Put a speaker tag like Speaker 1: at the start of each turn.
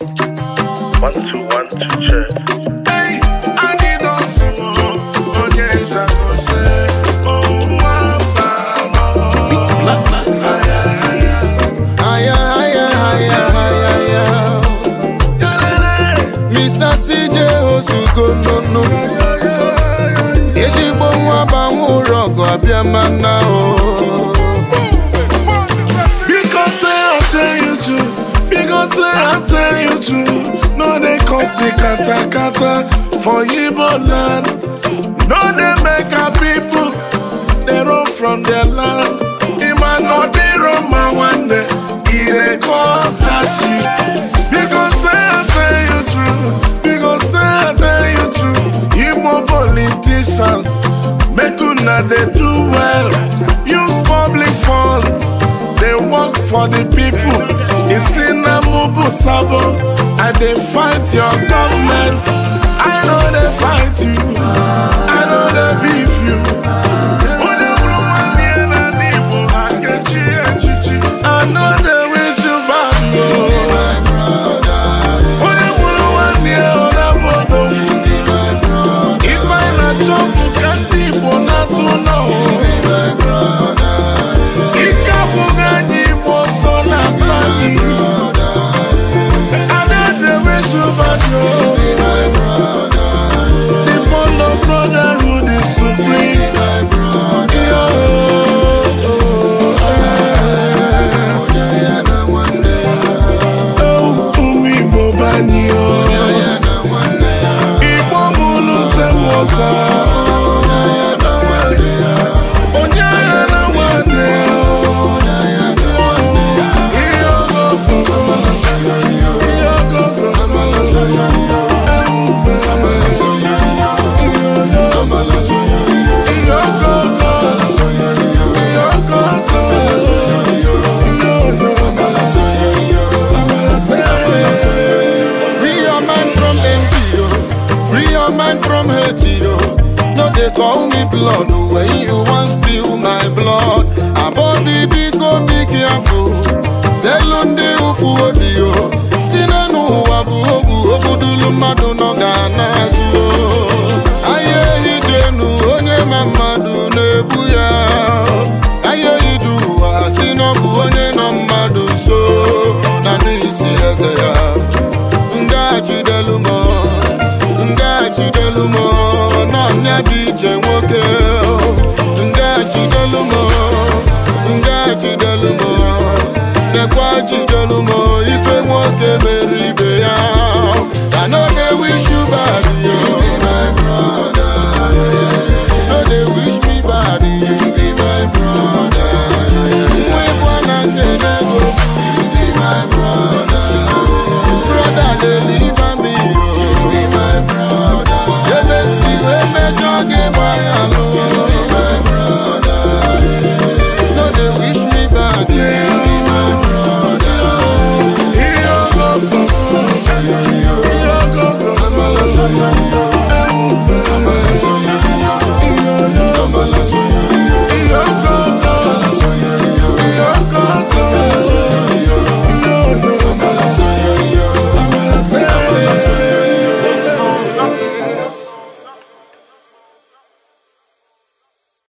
Speaker 1: One, two, one,
Speaker 2: ezigbo oh, nwa banwe ụlọ ọgụ abịa mana o
Speaker 1: I say I tell you true No they cause the kata kata for yibo land No they make our people They run from their land Ima no they run my one day Ire cause ashi Because say I tell you true Because say I tell you true Igbo politicians Make una they do well Use public funds They work for the people It's in Obu Sabo, I dey fight your government. I know they fight you.
Speaker 2: no man from haiti yo oh. no dey call me blood oh. when you wan spill my blood afọ selu ndị ụfụ obi yo oh. si na ụwa bụ ogwu ogbudulu mmadụ nọ ga-anazụ ahịa ehi dị enu onye ma mmadụ na-ebu ya ahịa ehi dị ụwa si bụ onye nọ mmadụ so na eze gị iche nwoke nga jidelu m nga jidelu dekwa jidelu